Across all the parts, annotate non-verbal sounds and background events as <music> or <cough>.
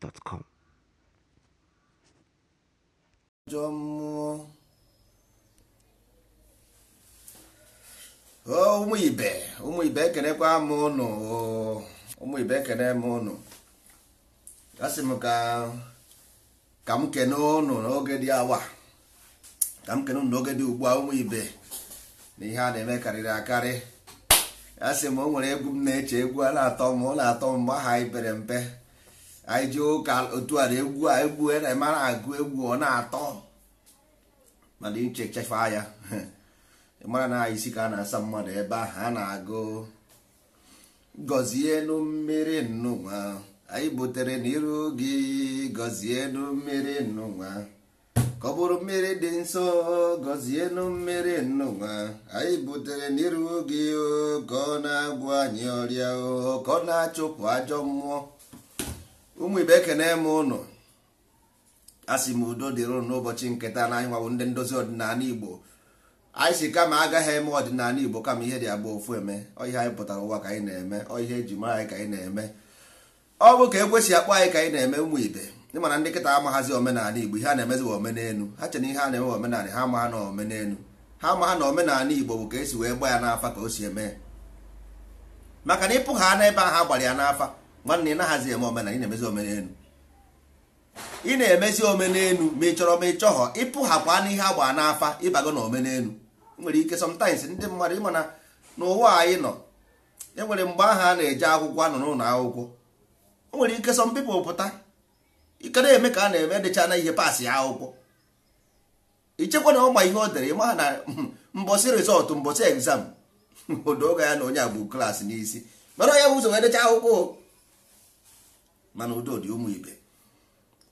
gmail.com ajọ mmụọ ụmụ ibe ụmụ ibe ekenekwa m ụnụ ụmụ ibe ekene m ụnụ asị m ka ka m kene ụnụ n'oge dị awa ka m kene ụnụ n'oge dị ugbu a ụmụ ibe na ihe a na-eme karịrị akarị asị m o nwere egwu m na-eche egwu a na-atọ m ọ na-atọ m aha ibere mpe anyị ji ụka otu a egwu a egwu e, na agụ egwu ọ na-atọ mana ichechefa ya <laughs> mara na anyị si ka a na-asa mmadụ ebe ahụ a na-agụ gọzienụ mmiri nnụnwa anyị butere n'iru gị gọzienụ mmiri nnụnwa ka ọ bụrụ mmiri dị nsọ gọzienụ mmiri nnụnwa anyị butere n'iru gị oh, ka ọ na agwụ anyị ọrịa oh, ka ọ na-achụpụ ajọ mmụọ ụmụ ibe ekene m ụnụ asị m udo dịrị n'ụbọchị nketa na anyị nwabụ ndị ndozi ọdịnala igbo anyị si kama agaghị eme ọdịnala igbo kama ihe dị agba ofu eme ọihe anyị pụtara ụwa ka anyị na-eme ọihe eji mara anyị ka anyị na-eme ọ bụ ka ekwesị akpọ anyị ka anyị na-eme ụmụ ibe ị mana ndị nkịta amaghazi omenala igbo ihe a na-emezi bụ omenelu ha chere ihe a na-eme omenala ha amagha na omenelu ha amagha na omenala igbo bụ ka esi wee gba ya n'afa ka o si eme maka na ịpụgha n'ebe ahụ ha gbara ya n'afa nwanne ị naghazi eme omena ị na-emezi omenelu ị na-emezi omenelu ma ị chọrọ ma ị chọghọ ịpụghapụ anụ ihe agba n'afa ịbago na omenelu nwere ike ndị mmadụ ịma na n'ụwa anyị nọ e nwere mgbe ahụ a na-eje akwụkwọ anọ n'ụlọ akwụkwọ o nwere ike sọ people pụta ike na-eme ka a na-eme dịcha na ihe paasị ya akwụkwọ ichekwa na ọgba ihe o dere ịma na mbọsi <laughs> rịzọtụ mbọsị egzam <laughs> odoga ya na onye agbụ klaasị n'isi mara onye bụ ụzọ wee decha akwụkwọ mana udo dị ụmụ ibe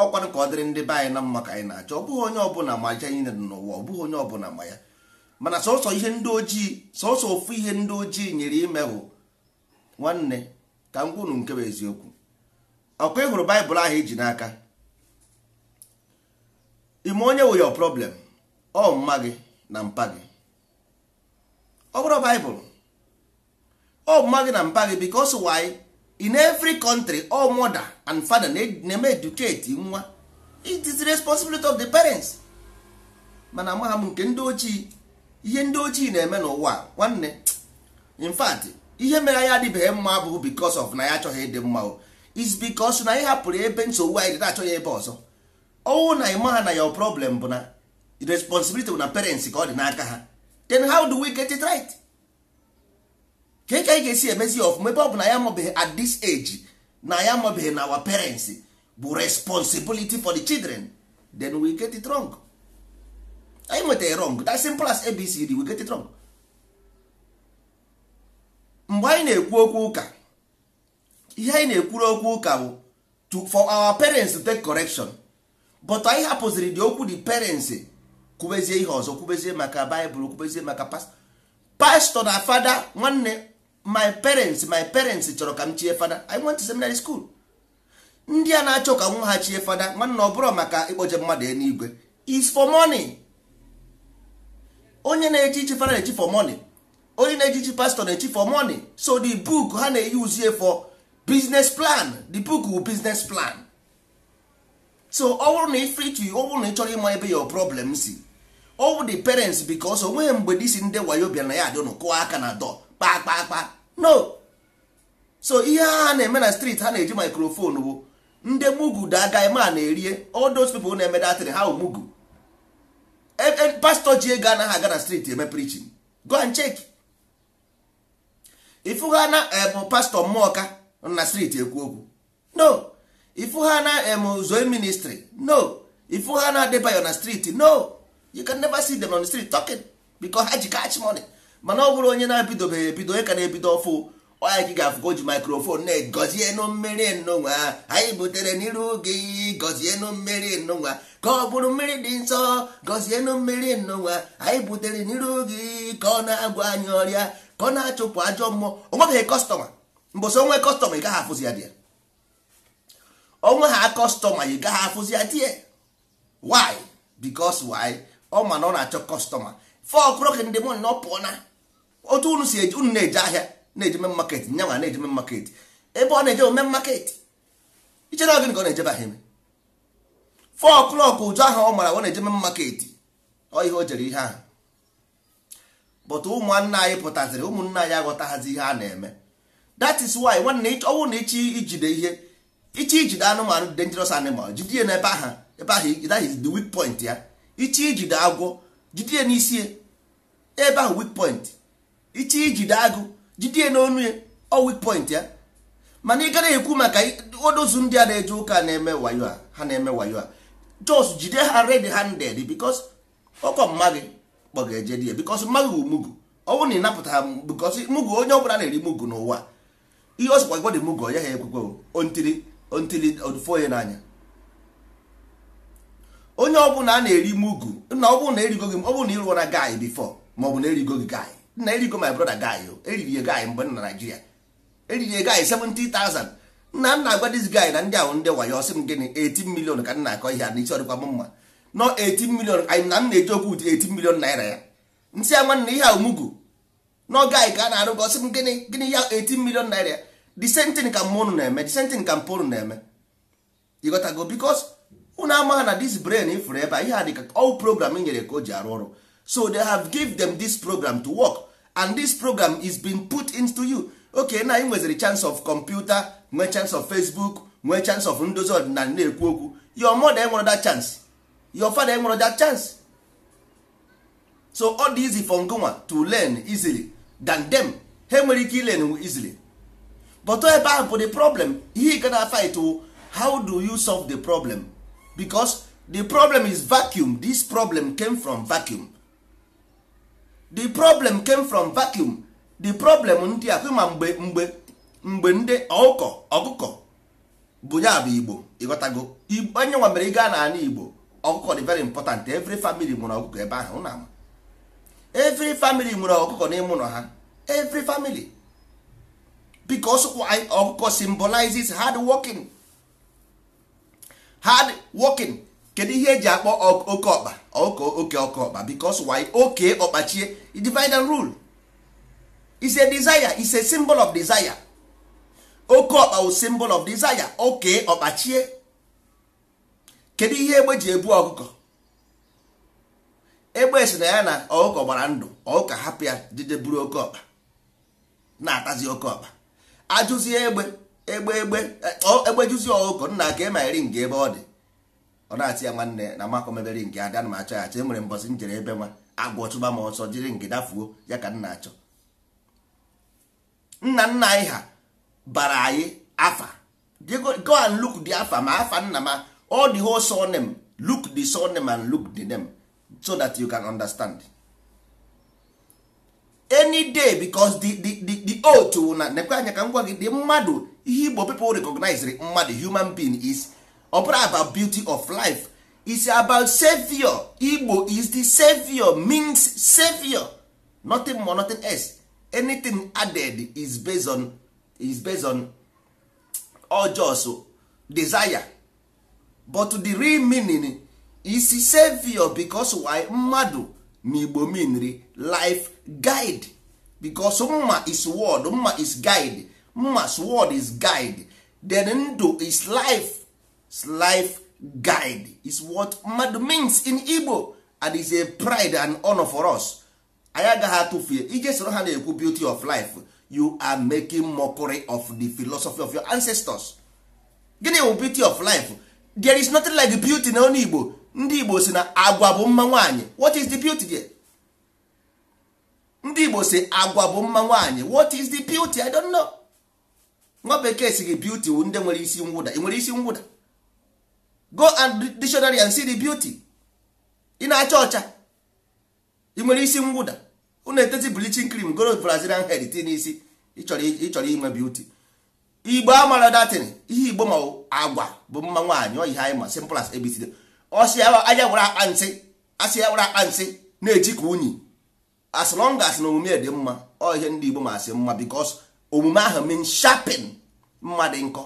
ọkwanụ ka ọ dịrị ndị be anyị na mma ka anyị na-achọ ọ bụghị onye ọbụla ma aja anyị n'ụwa ọ bụghị onye ọbụla ma ya mana sọsọ ihe ndị ojii sọsọ ofu ihe ndị ojii nyere ime bụ nwanne ka m nke bụ eziokwu ọkụ ị hụrụ baịbụl ahụ iji e n'aka ime onye wụ yo problem ọ mma gị na mpa gị ọ bụrụ baịbụl ọ mma gị na mpa gị because why in every country all mother and father na-eme educate nwa it is the responsibility of the parents mana amaghị m nke ndị ochie ihe ndị ochie na-eme n'ụwa nwanne in fact ihe mere anyị adịbeghị mma bụ because of na ya achọghị ịdị mma is because na ị hapụrụ ebe nsogbu anyị dị na-achọghị ebe ọzọ ọnwụ na ịma ha na your problem bụ na responsibility bụ na parents ka ọ dị n'aka ha then how do we get it right? ka anyị ga-esi emezi ọfụma ebe ọ bụ na ya amabeghị at this age na ya amabeghị na our parents bụ responsibility for the children then we get it wrong anyị nwetara wrong that simple as abcd we get it wrong mgbe anyị na-ekwu okwu ụka ihe anyị na-ekwuru okwu ụka bụ for our parents to take correction but anyị hapụziri dị okwu the parents kwubezie ihe ọzọ kwubezie maka baịbụl kwubezie maka pastọ na fada nwanne my parents my parents chọrọ ka m chie fada i went seminary school ndị a na-achọ ka nwa ha chie fada nwanne ọ bụrụ maka ịkpọje mmadụ eluigwe is for money onye na-eji ichi fada na-eji for money onye na-eji ichi pastor na-eji for money so the book ha na-eyuzie for business plan the book wu business plan so ọ bụrụ na ifrit ọ bụrụ na ị chọrọ ịma ebe your problem si ọ bụ the parents because onweghị mgbe disi ndị wayo bịa na ya adịnụ kụọ aka na dọ kpakpakpa no so ihe ha na-eme na street ha na-eji maikrofonu bụ ndị mugu daga ma na-erie all those na-eme datịrị ha mugu e, e, pastọ ji ego anaghị aga na street eme preaching go and check ifu ha na em pastọ mmụọka na street ekwu okwu no ifu ha na em zoe ministry no ha na adebayo na street no you can never see them on the street talking because ha ji catch money mana ọ bụrụ onye na-ebidobeghị ebido onye ka na-ebido ọfụ ọnya ka ị ga-afụ ka o ji maikrofon na-egozie nụ mmiri nnụnwa anyị butere n'iru oge gozie nụ mmeri nnụnwa ka ọ bụrụ mmiri dị nsọ gozie nụ mmeri nnụnwa anyị butere n'iru gị ka ọ na-agwa anyị ọrịa ka ọ na-achụpụ ajọ mmụọ onwebeghị kọstọma mbọsị onwe kọstọma ị gaghị afụzi ya dị onwe ha kọstọma ị gaghị afụzi ya dị why because why ọ ma na ọ na-achọ kọstọma four o'clock in the morning na ọ pụọ oh, na otu unu si unu na-eje ahịa na-eje me market nyanwa na-eje me market ebe ọ na-eje men market ichere gịnị ka ọ na eje ahịa eme four ụjọ ahụ ọ mara ọ na-eje me market ọ ihe o jere ihe ahụ but ụmụnna anyị pụtaziri ụmụnna anyị aghọtaghazi ihe a na-eme that is why nwanne ọnwụ na ichi ijide ihe ichi ijide anụmanụ dangerous animal jide ya n'ebe ahụ ebe ahụ that is the weak point ya ichi ijide agwọ jide n'isi ebe ahụ wik point iche ijide agụ jide n'onu ya ọ weak point ya mana ị gara ekwu maka odozu ndị a na-eje ụka na-eme wayo a ha na-eme wayo a jos jide ha red handed because ọkọ mma kpọga-eje di ya because mma gị mugu ọ bụrụ na ị napụta ha because mugu onye ọbụla na-eri mugu n'ụwa ihe ọ sịkwa gwọdị mugu ọ ya ha ekwekwe ontiri ontiri onye n'anya onye ọbụla a na-eri mugu na ọ bụrụ na erigo gị ọ bụrụ na ịrụọ na guy before ma ọ na erigo gị guy na erigo my brother guy o eriri ya guy mgbe na Naịjirịa eriri ya guy 70,000 nna nna agwa this guy na ndị ahụ ndị wayo sị m gịnị 18 million ka m na-akọ ihe a n'isi ọdịkwa m mma nọ 18 million anyị na m na-eji okwu ụdị 18 million naira ya nsị ya nwanne ihe ahụ mugu nọ guy ka a na-arụ gị sị m gịnị gịnị ya 18 million naira the same thing ka mmụnụ na-eme the ka mpụ na-eme ịghọtago because unu ama na this brain ifuru ebe a ihe a dịka all program nyere ka o ji arụ ọrụ so they have give them this program to work and this program is being put into you okay na ị nweziri chance of computer nwee chance of facebook nwee chance of ndozi ọdịnala na-ekwu okwu your mother enwere that chance your father enwere that chance so all dị easy for ngonwa to learn easily than them ha nwere ike ilen easily but ebe ahụ bụ the problem ihe gana fight how do you solve the problem because the problem is vacuum this problem came from vacuum the problem came from vacuum the problem ndị a ma mgbe mgbe mgbe ndị ọkụkọ ọkụkọ bụ ya bụ igbo ịghọtago onye nwa mere ị gaa n'ala igbo ọkụkọ dị very important every family nwere ọkụkọ ebe ahụ na ama every family nwere ọkụkọ n'ime ụlọ ha every family because ọkụkọ symbolizes hard working hard working kedu ihe eji akpọ oke ọkpa oke oke ọkpa because why oke ọkpachie divide rule is a desire is a symbol of desire oke ọkpa wụ symbol of desire oke ọkpachie kedu ihe egbe ji ebu ọkụkọ egbe si na ya na ọkụkọ gbara ndụ ọkụkọ hapụ ya buru oke ọkpa na-atazi oke ọkpa ajụzie egbe egbe egbe e, egbejuzi ọgụgụ nna ka ema eri nga ebe ọ dị ọ na-atị ya nwanne na makọ mebere nke ada na achọ ya achọ enwere mbọsị m jere ebe nwa agwọ chụba m ọsọ jiri nke dafuo ya ka nna achọ nna nna anyị ha bara anyị afa go and look the afa ma afa nna ma all the whole surname look the surname and look the name so that you can understand any day because the the the, the oath na nekwe anya ka m gwa gị dị mmadụ ihe igbo people recognize mmadụ human being is ọ bụrụ about beauty of life is about savior igbo is the savior means savior nothing more nothing else anything added is based on is based on ojos desire but the real meaning is savior because why mmadụ na igbo meanri life guide because mma is word mma is guide mma's word is guide then ndụ is life is life guide is what mmadụ means in Igbo and is a pride and honor for us anyị agaghị atụfue ije soro ha na-ekwu beauty of life you are making mockery of the philosophy of your ancestors gịnị bụ beauty of life there is nothing like beauty na onye Igbo ndị Igbo si na agwa bụ mma nwaanyị what is the beauty there? ndị Igbo si agwa bụ mma nwaanyị what is the beauty I don't know. nwa bekee si gị beauty wu ndị nwere isi ngwụda ị nwere isi ngwụda go and dictionary and see the beauty ị na-acha ọcha ị nwere isi ngwụda unu eteti blichin cream goro brazilian head ti n'isi ịchọrọ inwe beauty igbo amara datin ihe igbo ma agwa bụ mma nwaanyị oyihe anyị ma simple as abcd ọsị anya gwara akpa nsị asị ya akpa nsị na-eji ka unyi as long as na omume dị mma ọ ihe ndị igbo ma asị mma bikos omume ahụ mean sharpen mmadụ nkọ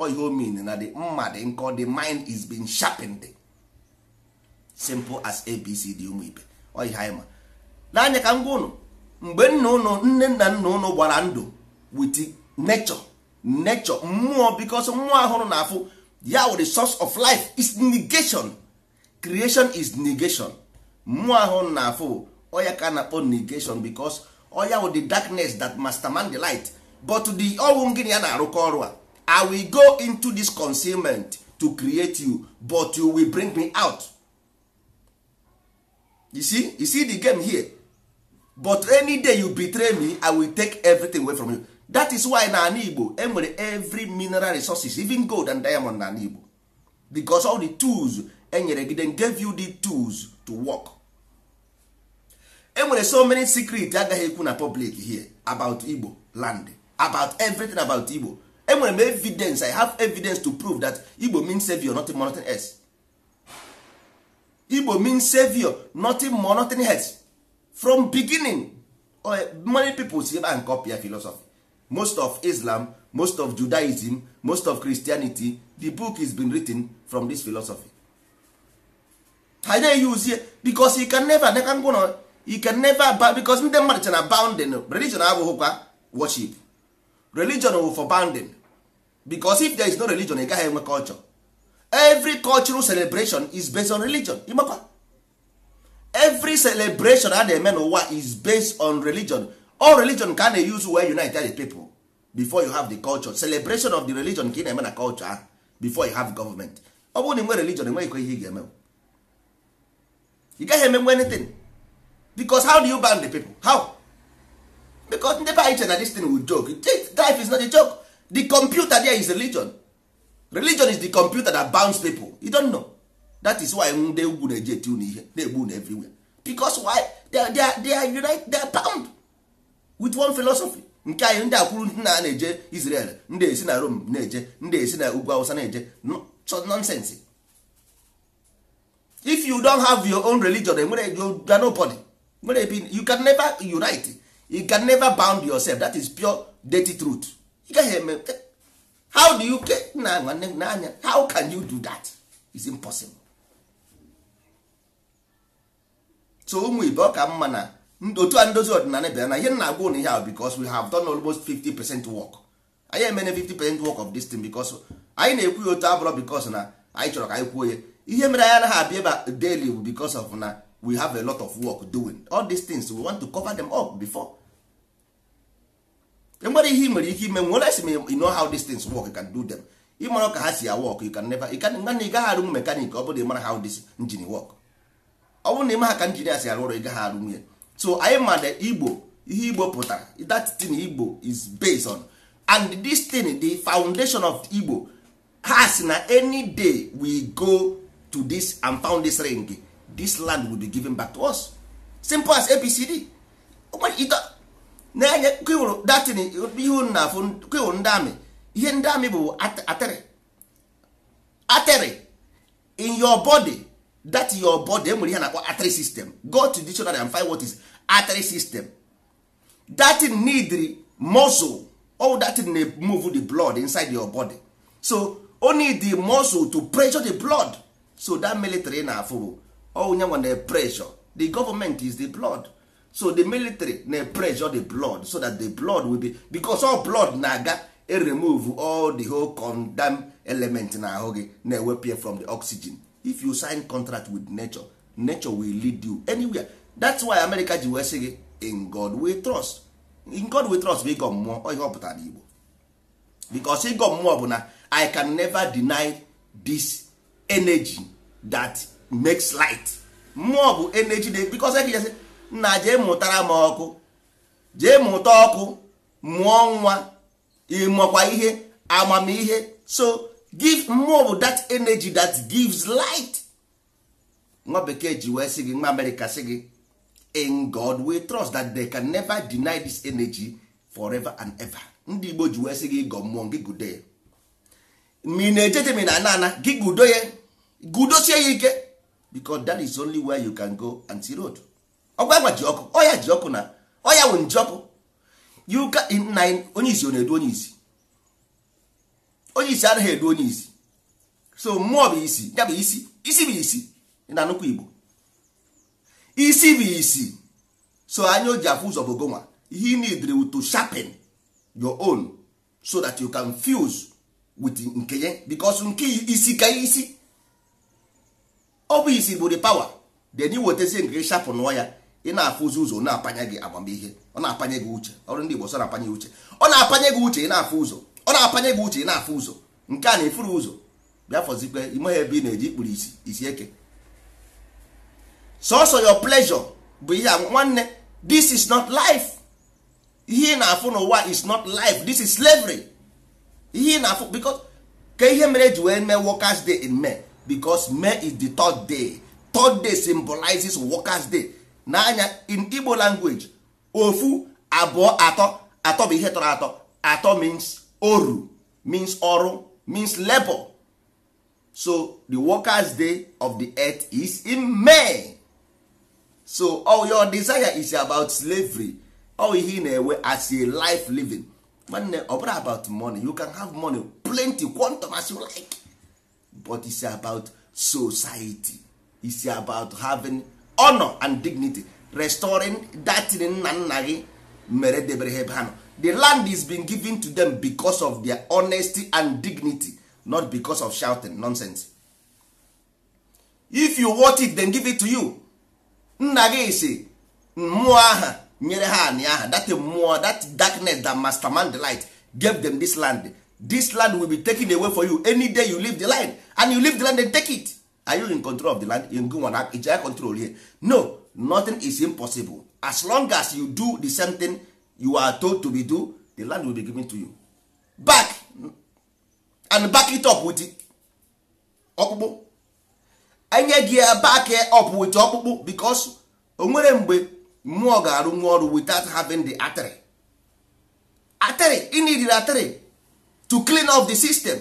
ọ ihe o mean na the mmadụ nkọ the mind is being sharpened simple as abc d ụmụ ibe ọ ihe anyị ma n'anya ka m gwa ụnụ mgbe nna ụnụ nne nna nna ụnụ gbara ndụ with nature nature mmụọ because mmụọ ahụrụ na afụ ya wụ the source of life is negation creation is negation mmụọ ahụrụ na afụ ọ ya ka na-akpọ negation because oya with the darkness that man the light but the ọnwụ gịnị na-arụkọ ọrụ a i will go into this concealment to create you but you will bring me out you see you see the game here but any day you betray me i will take everything away from you that is why na ana igbo enwere every mineral resources even gold and diamond na ana igbo because all the tools enyere gị then gave you the tools to work enwere so many secret agaghị ekwu na public here about igbo land about everything about igbo enwere m evidence i have evidence to prove that igbo means savior nothing more nothing else igbo means savior nothing more nothing else from beginning oh, many people si ebe a philosophy most of islam most of judaism most of christianity the book is been written from this philosophy ha use eyuzie because you can never go ngwụnọ you can never bound because ndị mmadụ che na bounding religion abụghịkwa worship religion wụ for bounding because if there is no religion ị gaghị enwe culture every cultural celebration is based on religion ịmakwa every celebration a na-eme n'ụwa is based on religion all religion ka a na-use wee united the people before you have the culture celebration of the religion ka ị na-eme na culture before you have government ọ bụrụ na ị religion enweghịkwa ihe ị ga-eme ị gaghị eme anything because how do you ban the people how because ndị anyị na this thing will joke life is not a joke the computer there is religion religion is the computer that bounds people you don't know that is why ndị ugwu na-eji eti unu ihe na-egbu everywhere because why they are, they are, they are unite they are bound with one philosophy nke anyị ndị akwuru ndị na na-eje Israel ndị esi na Rome na-eje ndị esi na ugwu awụsa na-eje so nonsense if you don't have your own religion enwere you are nobody mere ebi you can never unite you can never bound yourself that is pure dirty truth you gaghị eme how do you get na nwanne n'anya how can you do that is impossible so ụmụ ibe ọ ka mma na otu a ndozi ọdịnala bịara na ihe nna agwa ụnụ ihe ahụ because we have done almost 50 percent work anyị emene 50 percent work of this thing because anyị na-ekwu ya otu abụrọ because na anyị chọrọ ka anyị kwuo ya ihe mere anyị anaghị abịa ebe daily bụ because of na we have a lot of work doing all these things we want to cover them up before enwere ihe ị nwere ike ime nwere esi you know how these things work you can do them ịmara ka ha si work you can never nana ị gaghị arụnwu mekanik ọ bụrụ ịmara how this engine work ọ bụrụ na ịma ha ka injinia si arụ ọrụ ị gaghị ya so anyị ma na igbo ihe igbo pụtara that thing igbo is based on and this thing the foundation of igbo has na any day we go to this and found this ring this land will be given back to us simple as abcd na-enye kewụrụ datin ihu na afụ kewụrụ ndị amị ihe ndị amị bụ atịrị atịrị in your body that your body enwere ihe na-akpọ atịrị system go to dictionary and find what is atịrị system datin need muscle all datin na move the blood inside your body so only the muscle to pressure the blood so that military na-afụ onye nwa na pressure the government is the blood so the military na pressure the blood so that the blood will be because all blood na-aga e remove all the whole condemn element na ahụ gị na-ewepụ from the oxygen if you sign contract with nature nature will lead you anywhere that's why America ji wee sị gị in God we trust in God we trust bụ ịgọ mmụọ ihe ọ pụtara Igbo because ịgọ mmụọ bụ na I can never deny this energy that makes light mmụọ bụ energy dey because eke jesi nna jee mụtara m ọkụ jee mụta ọkụ mụọ nwa ịmụọkwa ihe amamihe so give mmụọ bụ that energy that gives light nwa bekee ji wee sị gị nwa amerịka sị gị in god we trust that they can never deny this energy forever and ever ndị igbo ji wee sị gị gọ mmụọ gị gudo mi na-ejeje na gị gudo ya gudosie ya ike because that is only where you can go and see road ọgwa ji ọkụ ọya ji ọkụ na ọya wụ nji ọkụ yuka na onye isi ọ na-edu onye isi onye isi anaghị edu onye isi so mmụọ bụ isi ya bụ isi isi bụ isi na nnukwu igbo isi bụ isi so anya o ji afụ ụzọ bụ gonwa he need to sharpen your own so that you can fuse with nke ya because nke isi ka isi ọ bụ isi bụ the power then ị wetezie nke shapụ nụọ ya ị na-afụzi ụzọ na-apanye gị amamihe ọ na-apanye gị uche ọrụ ndị Igbo sọ na-apanye uche ọ na-apanye gị uche ị na-afụ ụzọ ọ na-apanye gị uche ị na-afụ ụzọ nke a na-efuru ụzọ bịa fọzikwe imeghe ebe ị na-eji ikpuru isi isi eke sọsọ your pleasure bụ ihe a nwanne this is not life ihe ị na-afụ n'ụwa is not life this is slavery ihe ị na-afụ because ka ihe mere eji wee mee workers day in May because May is the third day third day symbolizes workers day n'anya in Igbo language ofu abụọ atọ atọ bụ ihe tọrọ atọ atọ means oru means ọrụ means labor so the workers day of the earth is in May so all oh, your desire is about slavery all oh, ihe ị na-enwe as a life living nwanne ọ bụrụ about money you can have money plenty quantum as you like but it's about society it's about having honor and dignity restoring that nna nna gị mere debere ha ebe ha nọ the land is being given to them because of their honesty and dignity not because of shouting nonsense if you want it then give it to you nna gị si mmụọ aha nyere ha anị aha Dat mmụọ that darkness that mastermind the light gave them this land this land will be taken away for you any day you leave the land and you leave the land and take it are you in control of the land in gwana ijaya control here no nothing is impossible as long as you do the same thing you are told to be do the land will be given to you back and back it up with ọkpụkpụ enye gị back up with ọkpụkpụ because o nwere mgbe mmụọ ga-arụ nwa ọrụ without having the atịrị atịrị ị nidiri atịrị to clean up the system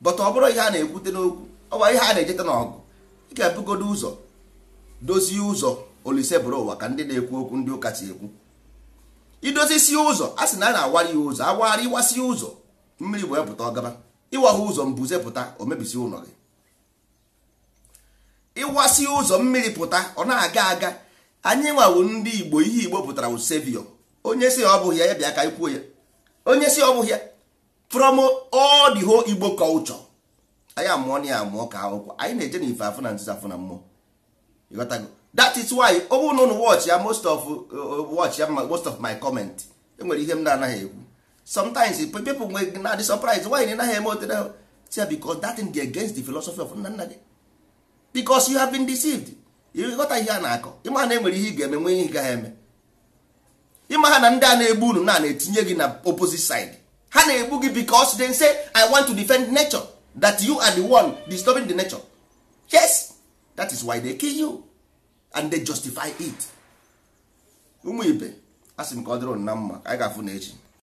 but ọ bụrụ ihe a na-ekwute n'okwu ọwa ihe a na-ejeta n'ọgụ ị ga-ebugodo ụzọ dozie ụzọ olise bụrụ ụwa ka ndị na-ekwu okwu ndị ụka si ekwu idozisi ụzọ a sị na a na-awara ya ụzọ awagharị ịwasị ụzọ mmiri wee pụta ọgaba ịwagha ụzọ mbuze pụta o mebisi ụlọ gị ịwasi ụzọ mmiri pụta ọ na-aga aga anyị nwawo ndị Igbo ihe Igbo pụtara wụ sevio onye si ọ bụghị ya ya bịa ka anyị ya onye si ọ bụghị ya from all the whole igbo culture anyị amụọ na ya amụọ ka akwụkwọ anyị na-eje na ife afụ na nzuzo afụ na mmụọ ịghọtago that is why ọ na ụnụ watch ya most of uh, watch ya most of my comment enwere ihe m na-anaghị ekwu sometimes people nwe na dị surprise nwanyị na naghị eme otere tia because that thing dey against the philosophy of nna nna gị because you have been deceived ịghọta ihe a na-akọ ịma na enwere ihe ị ga-eme nwe ihe ị gaghị eme ịma ha na ndị a na-egbu unu na na-etinye gị na opposite side ha na-egbu gị because they say i want to defend nature that you are the one disturbing the nature yes that is why they kill you and they justify it ụmụ ibe asị m ka ọ dịrị na mma anyị ga-afụ na echi